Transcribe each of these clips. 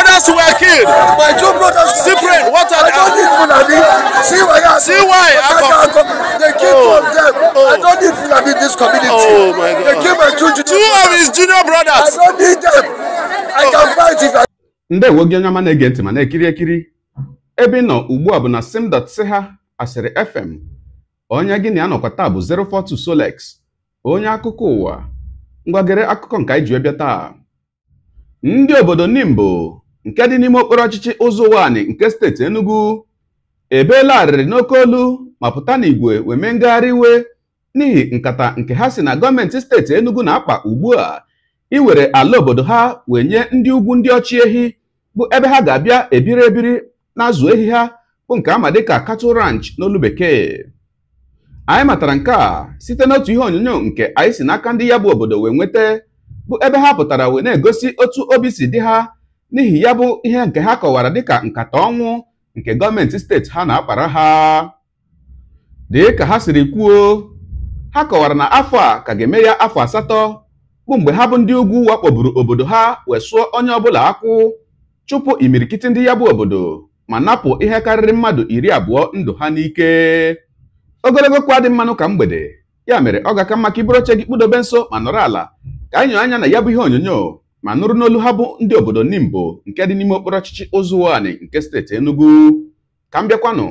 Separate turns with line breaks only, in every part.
brothers were killed. My two brothers I don't need Fulani. See why I See of them. Oh. I don't need Fulani in this community. Oh They killed my two junior Two brothers. of junior brothers. I don't need them. I oh. can fight if I... Ndewo gị onye ọma na-ege ntị ma na-ekiri ekiri ebe ị nọ ugbu a bụ na ha, asịrị fm onye gị na ya nọkwa taa bụ 042 Solex onye akụkọ ụwa ngwagere akụkọ nke anyị ji taa ndị obodo Nimbo nke dị n'ime okporo ọchịchị ụzọ ụwanị nke steeti Enugu ebeela arịrị n'oke olu ma pụta n'igwe wee mee ngagharị iwe n'ihi nkata nke ha si na gọọmenti steeti Enugu na-akpa ugbu a iwere ala obodo ha wee nye ndị ugwu ndị ọchị ehi bụ ebe ha ga-abịa ebiri ebiri na-azụ ehi ha bụ nke ama dịka cattle ranch n'olu bekee anyị matara nke a site n'otu ihe onyonyo nke anyị si n'aka ndị ya bụ obodo wee nweta bụ ebe ha pụtara wee na-egosi otu obi si dị ha n'ihi ya bụ ihe nke ha kọwara dịka nkata ọnwụ nke gọọmenti steeti ha na-akpara ha dịka ha siri kwuo ha kọwara na afọ a ka ga-eme ya afọ asatọ bụ mgbe ha bụ ndị ugwu wakpoburu obodo ha wee sụọ onye ọbụla akwụ chụpụ imirikiti ndị ya bụ obodo ma napụ ihe karịrị mmadụ iri abụọ ndụ ha n'ike ogologo kwa dị mmanụ ka mgbede ya mere ọ ga-aka mma ka iburu oche gị kpụdobe nso ma nọrọ ala ka anyị anya na ya bụ ihe onyonyo ma nụrụ n'olu ha bụ ndị obodo Nimbo nke dị n'ime okporo ọchịchị Ụzụwani nke steeti Enugu ka m bịakwanụ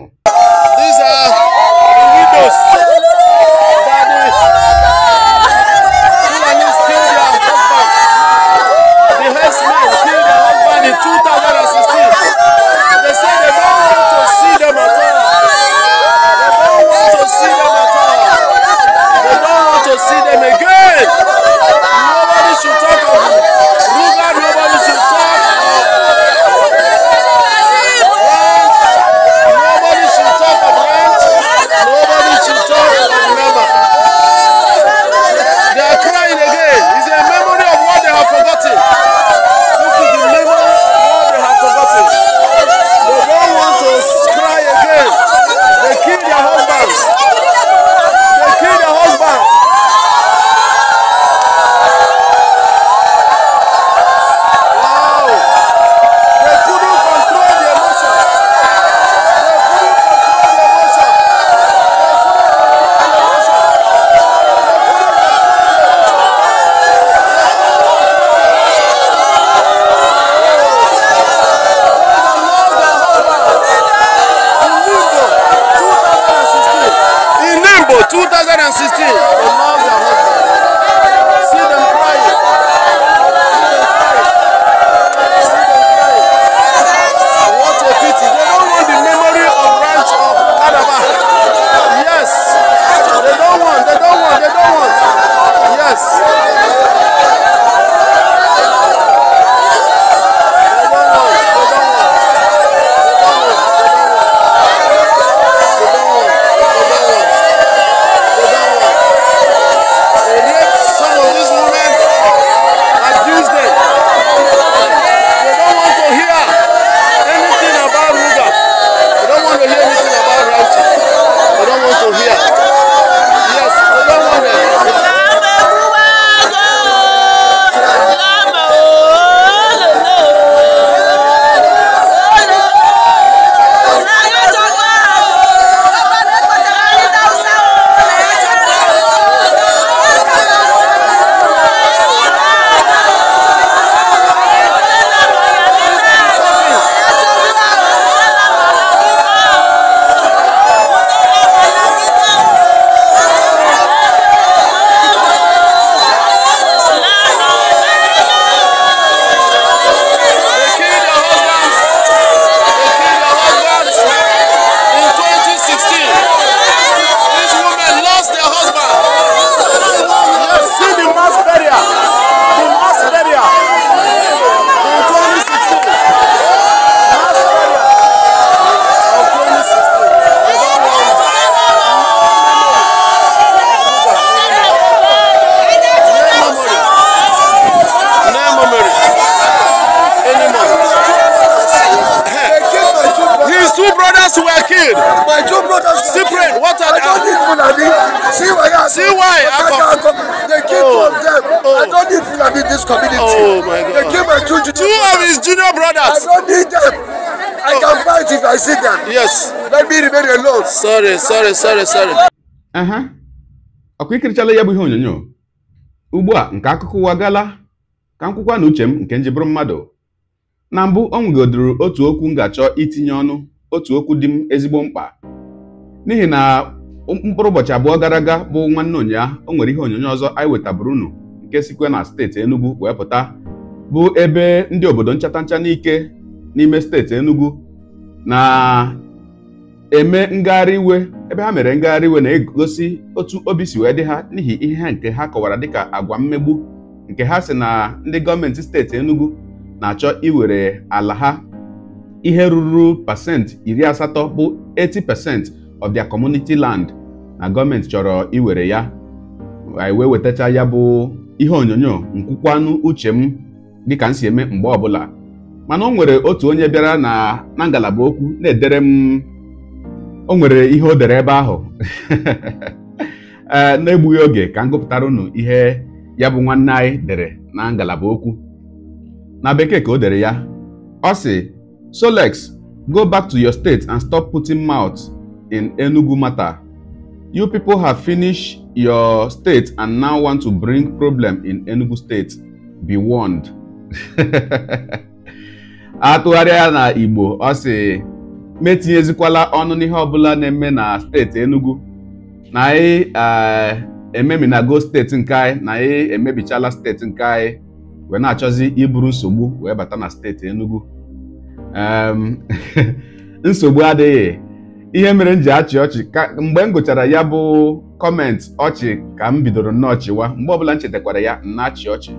see why CY Akpom. They killed oh. two of them. Oh, oh. I don't need to Fulani in this community. Oh my God. They keep my two junior Two of his junior brothers. I don't need them. I can oh. fight if I see them. Yes. Let me remain alone. Sorry, sorry, sorry, sorry. Uh-huh. ọkụ ikirichala ya bụ ihe onyonyo ugbu a nke akụkọ ụwa gala ka m kwụkwa na uche m nke njibụrụ mmadụ na mbụ ọ nwegodoro otu okwu m ga-achọ itinye ọnụ otu okwu dị m ezigbo mkpa n'ihi na mkpụrụ ụbọchị abụọ gara aga bụ nwanne ụnyaahụ o nwere ihe onyonyo ọzọ anyị wetabụrụ unu nke sikwe na steeti Enugu wee pụta bụ ebe ndị obodo nchata ncha n'ike n'ime steeti Enugu na-eme ngagharị iwe ebe ha mere ngagharị iwe na-egosi otu obi si wee dị ha n'ihi ihe nke ha kọwara dịka agwa mmegbu nke ha si na ndị gọọmenti steeti Enugu na-achọ iwere ala ha ihe ruru pasent iri asatọ bụ 80 pasent of their community land na gọọmenti chọrọ iwere ya anyị wee wetacha ya bụ ihe onyonyo nkwukwanụ uche m dịka m si eme mgbe ọbụla mana o nwere otu onye bịara na ngalaba okwu na-edere m o nwere ihe o dere ebe ahụ eh, na-egbughị oge ka m gụpụtara unu ihe ya bụ nwanne anyị dere na ngalaba okwu na bekee ka o dere ya ọ sị Solex go back to your state and stop putting mouth in Enugu matter you people have finished your state and now want to bring problem in Enugu state be warned atụgharịa na Igbo ọ sị metinyezikwala ọnụ n'ihe ọbụla na-eme na steeti Enugu na anyị Go steeti nke anyị na anyị emebichala steeti nke anyị wee na-achọzi iburu nsogbu wee bata na steeti Enugu nsogbu adịghị ihe mere m ji achị ọchị ka mgbe m gụchara ya bụ kọmentị ọchị ka m bidoro nnọọ chịwa mgbe ọbụla m chetakwara ya na ọchị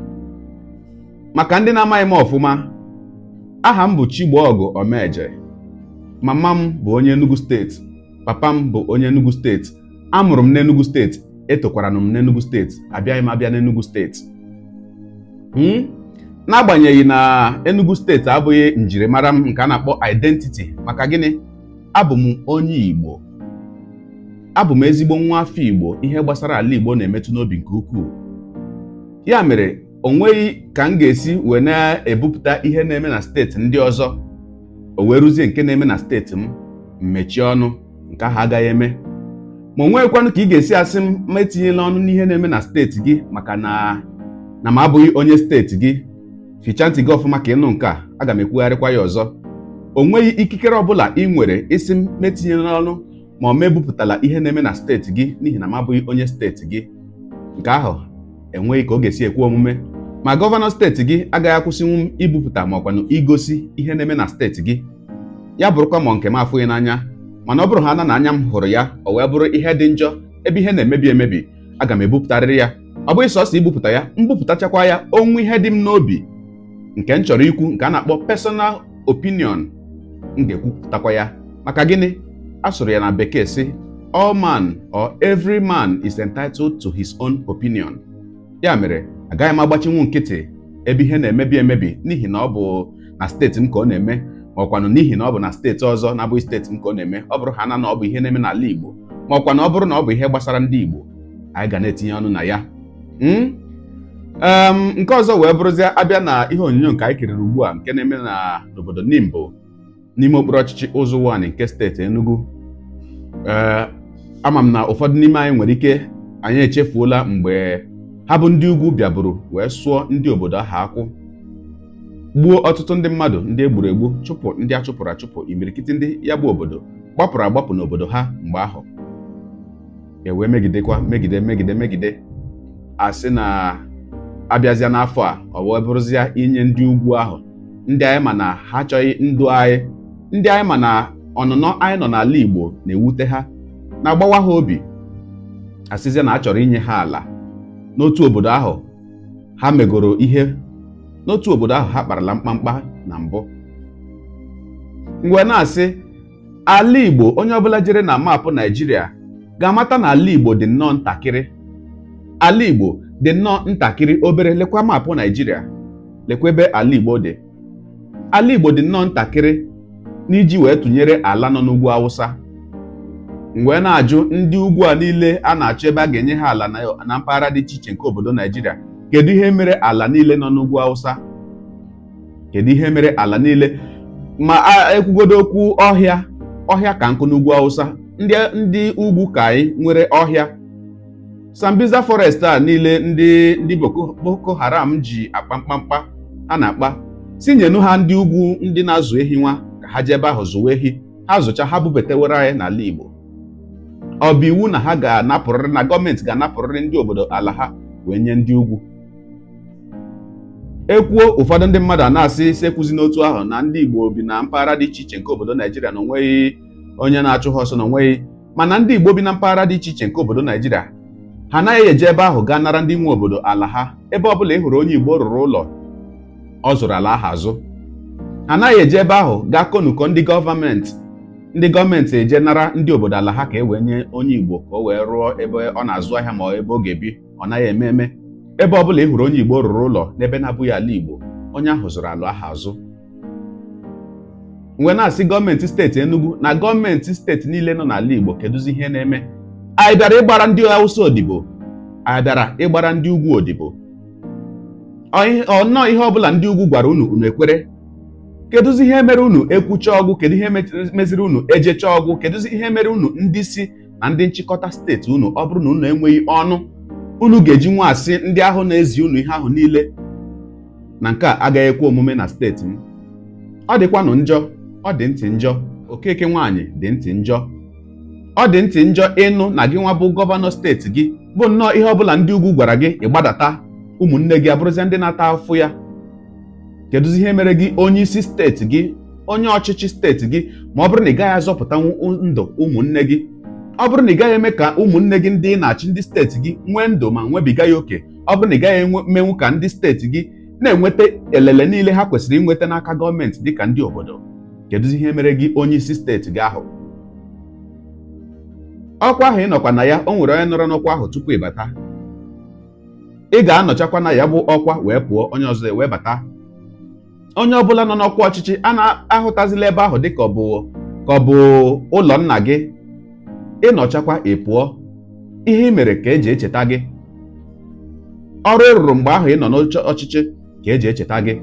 maka ndị na-amaghị m ọfụma aha m bụ Chigboọgụ Omeje mama m bụ onye Enugu steeti papa m bụ onye Enugu steeti amụrụ m n'Enugu steeti etokwara m n'Enugu steeti abịaghị m abịa n'Enugu steeti hmm? n'agbanyeghị na Enugu steeti abụghị njirimara m nke a na-akpọ identity maka gịnị abụ m onye Igbo abụ m ezigbo nwa afọ Igbo ihe gbasara ala Igbo na-emetụ n'obi nke ukwuu ya mere o nweghị ka m ga-esi wee na-ebupụta ihe na-eme na steeti ndị ọzọ o wee rụzie nke na-eme na steeti m mmechie ọnụ nke ahụ agaghị eme ma o nweghịkwanụ ka ị ga-esi asị m ma etinyela ọnụ n'ihe na-eme na steeti gị maka na na m abụghị onye steeti gị fichaa ntị gị ọfụma ka ịnụ nke a aga m ekwugharịkwa ya ọzọ o nweghị ikikere ọbụla ị nwere isi m metinyere n'ọnụ ma ọ mebupụtala ihe na-eme na steeti gị n'ihi na m abụghị onye steeti gị nke ahụ enweghị ka ọ ga-esi ekwe omume ma gọvanọ steeti gị agaghị akwụsịnwu m ibupụta ma ọkwanụ igosi ihe na-eme na steeti gị ya bụrụkwa ma nke m afụghị n'anya mana ọ bụrụ ha na anya m hụrụ ya o wee bụrụ ihe dị njọ ebe ihe na-emebi emebi aga m ebupụtarịrị ya ọ bụghị sọsọ ibupụta ya mbupụtachakwa ya onwe ihe dị m n'obi nke m chọrọ ikwu nke a na-akpọ personal opinion m ga-ekwupụtakwa ya maka gịnị a sụrụ ya na bekee sị all man or every man is entitled to his own opinion ya mere agaghị m agbachinwu nkịtị ebe ihe na-emebi emebi n'ihi na ọ bụ na steeti m ka ọ na-eme ma ọkwanụ n'ihi na ọ bụ na steeti ọzọ na-abụghị steeti m ka ọ na-eme ọ bụrụ ha na na ọ bụ ihe na-eme n'ala Igbo ma ọkwa na ọ bụrụ na ọ bụ ihe gbasara ndị Igbo anyị ga na-etinye ọnụ na ya hmm? nke ọzọ wee bụrụzie abịa na ihe onyonyo nke anyị kiriri ugbu a nke na-eme n'obodo Nimbo n'ime okpuru ọchịchị ụzụ wan nke steeti Enugu ee eh, ama m na ụfọdụ n'ime anyị nwere ike anyị echefuola mgbe ha bụ ndị ugwu bịaburu wee sụọ ndị obodo ahụ akwụ gbuo ọtụtụ ndị mmadụ ndị egburu egbu chụpụ ndị a chụpụrụ achụpụ imirikiti ndị ya bụ obodo gbapụrụ agbapụ n'obodo ha mgbe ahụ ewee megidekwa megide megide megide asị na abịazịa n'afọ a ọ wee inye ndị ugwu ahụ ndị anyị ma na ha achọghị ndụ anyị ndị anyị ma na ọnụnọ anyị nọ n'ala Igbo na-ewute ha na-agbawa ha obi asịzie na a inye ha ala n'otu obodo ahụ ha megoro ihe n'otu obodo ahụ ha kparala mkpamkpa na mbụ mgbe na-asị ala Igbo onye ọbụla jere na maapụ naijiria ga-amata na ala Igbo dị nnọọ ntakịrị ala Igbo dị nnọọ ntakịrị obere lekwa maapụ naijiria lekwa ebe ala Igbo dị ala Igbo dị nnọọ ntakịrị n'iji wee tụnyere ala nọ n'ugwu awụsa mgbe na-ajụ ndị ugwu a niile a na-achọ ebe a ga-enye ha ala na mpaghara dị iche iche nke obodo naijiria kedu ihe mere ala niile nọ n'ugwu awụsa kedu ihe mere ala niile ma ekwugodo okwu ọhịa ọhịa ka nkụ n'ugwu awụsa ndị ndị ugwu ka anyị nwere ọhịa sambiza forest a niile ndị ndị boko haram ji akpa mkpamkpa a na-akpa tinyenu ha ndị ugwu ndị na-azụ ehi nwa ha ji ebe ahụ zụwa ehi ha zụcha ha bubatewere anyị n'ala Igbo ọ bụ iwu na ha ga-anapụrịrị na gọọmenti ga-anapụrịrị ndị obodo ala ha wee nye ndị ugwu ekwuo ụfọdụ ndị mmadụ a na-asị sekwuzi n'otu ahụ na ndị Igbo bi na mpaghara dị iche iche nke obodo Naijiria na onweghị onye na-achụ ha ọsọ na onweghị mana ndị Igbo bi na mpaghara dị iche iche nke obodo Naijiria ha anaghị eje ebe ahụ gaa nara ndị nwe obodo ala ha ebe ọ bụla ị hụrụ onye Igbo rụrụ ụlọ ọ zụrụ ala ahụ azụ anaghị eji ebe ahụ gaa konuko ndị gọọmenti ndị gọọmenti eje nara ndị obodo ala ha ka e wee nye onye igbo ka o wee rụọ ebe ọ na-azụ ahịa ma ebe ọ ga-ebi ọ naghị eme eme ebe ọ bụla ị hụrụ onye igbo rụrụ ụlọ n'ebe na-abụghị ala igbo onye ahụ zụrụ alụ aha azụ mgbe na-asị gọọmenti steeti enugu na gọọmenti steeti niile nọ n'ala igbo kedụzi ihe na-eme anyị bịara ịgbara ndị awụsa odibo anyị bịara ịgbara ndị ugwu odibo ọnọọ ihe ọbụla ndị ugwu gwara unu unu ekwere kedụzi ihe mere unu ekwucha ọgwụ kedu ihe meziri unu ejecha ọgwụ kedụzi ihe mere unu ndị isi na ndị nchịkọta steeti unu ọ bụrụ na unu enweghị ọnụ unu ga-eji nwa asị ndị ahụ na-ezi unu ihe ahụ niile na nke a agaghị ekwe omume na steeti m ọ dịkwanụ njọ ọ dị ntị njọ okeke nwaanyị dị ntị njọ ọ dị ntị njọ ịnụ na gị nwa bụ gọvanọ steeti gị bụ nnọọ ihe ọ bụla ndị ugwu gwara gị ịgbadata ụmụnne gị abụrụzie ndị na-ata afụ ya kedu ihe mere gị onye isi steeti gị onye ọchịchị steeti gị ma ọ bụrụ na ị gaghị azọpụta ndụ ụmụnne gị ọ bụrụ na ị gaghị eme ka ụmụnne gị ndị na-achị ndị steeti gị nwee ndụ ma nwebiga ya oke ọ bụrụ na ị gaghị emenwu ka ndị steeti gị na-enweta elele niile ha kwesịrị inweta n'aka gọọmenti ka ndị obodo kedụzi ihe mere gị onye isi steeti gị ahụ ọkwa ahụ ị nọkwa na ya o nwere onye nọrọ n'ọkwa ahụ tupu ịbata ị ga-anọchakwa na ya bụ ọkwa wee pụọ onye ọzọ wee bata onye ọbụla nọ n'ọkwa ọchịchị a na-ahụtazila ebe ahụ dịka ọ bụ ka ọ bụ ụlọ nna gị ịnọchakwa ị pụọ ihe ị mere ka e ji echeta gị ọrụ ị rụrụ mgbe ahụ ị nọ n'ọchịchị ka e ji echeta gị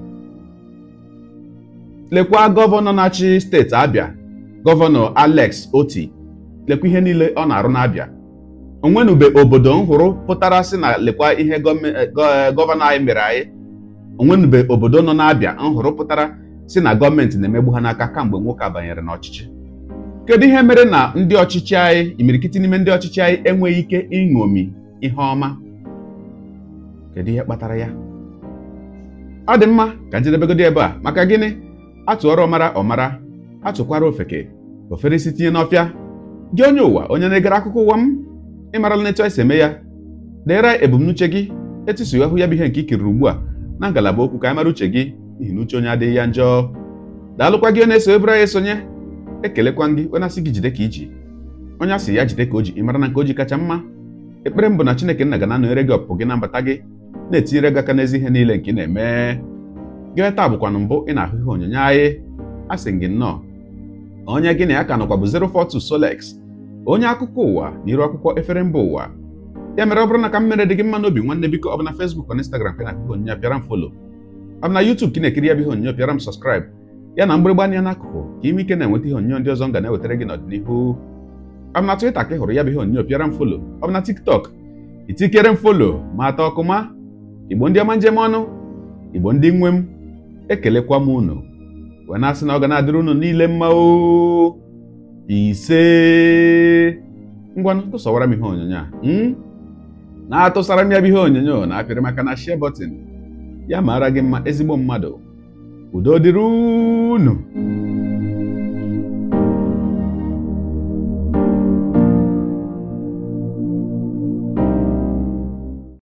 lekwa gọvanọ na-achị steeti Abịa gọvanọ Alex Oti lekwa ihe niile ọ na-arụ n'Abịa onwenube obodo nhụrụ pụtara sị na lekwa ihe gọvanọ anyị mere anyị onwenube obodo nọ n'abịa nhụrụ pụtara si na gọọmenti na-emegbu ha n'aka kamgbe nwoke a banyere n'ọchịchị kedu ihe mere na ndị ọchịchị anyị imirikiti n'ime ndị ọchịchị anyị enweghị ike ịṅomi ihe ọma kedu ihe kpatara ya ọ dị mma ka njedebegodi ebe a maka gịnị atụọrọ ọmara ọmara atụkwara ofeke ofere isi tinye n'ọfịa gị onye ụwa onye na-egere akụkọ ụwa m ịmarala n'etu esi eme ya deere ebumnuche gị etusughị ahụ ya bụ ihe nke ikiriri ugbu a na ngalaba okwu ka anyị mara uche gị n'ihi na uche onye adịghị ya njọ daalụkwa gị na-eso ebere anyị esonye ekelekwa ndị onye asị gị jide ka iji onye asị ya jide ka o ji ị mara na nke o ji kacha mma ekpere mbụ na chineke nna ga na gị ọpụpụ gị na mbata gị na-etinyere gị aka n'ezi ihe niile nke ị na-eme gị taa bụkwanụ mbụ ị na-ahụ ihe onyonyo anyị asị gị nnọọ onye gị na ya ka nọkwa bụ 042 Solex onye akụkọ ụwa na iru akwụkwọ efere mba ụwa ya mere ọ bụrụ na ka m dị gị mma n'obi nwanne biko ọ bụ na Facebook na Instagram ka na-akụkọ onyinye pịara m folo ọ bụ na YouTube ka ị na-ekiri ya bụ ihe onyinye pịara m sọskraịb ya na mgbịrịgba anya n'akụkụ ka ime ike na-enweta ihe onyinye ndị ọzọ m ga na-ewetara gị n'ọdịnihu ọ bụ na Twitter ka ị hụrụ ya bụ ihe onyinye pịara m folo ọ bụ na TikTok itikere m folo ma ata ma igbo ndị ọma njem ọnụ igbo ndị nwe m ekelekwa m unu wee na-asị na ọ ga na-adịrị unu niile mma o ise ngwanụ tụsọwara m ihe onyonyo a na-atụsara m ya bụ ihe onyonyo na apịrị maka na share bọtịn ya mara gị mma ezigbo mmadụ udo dịrị unu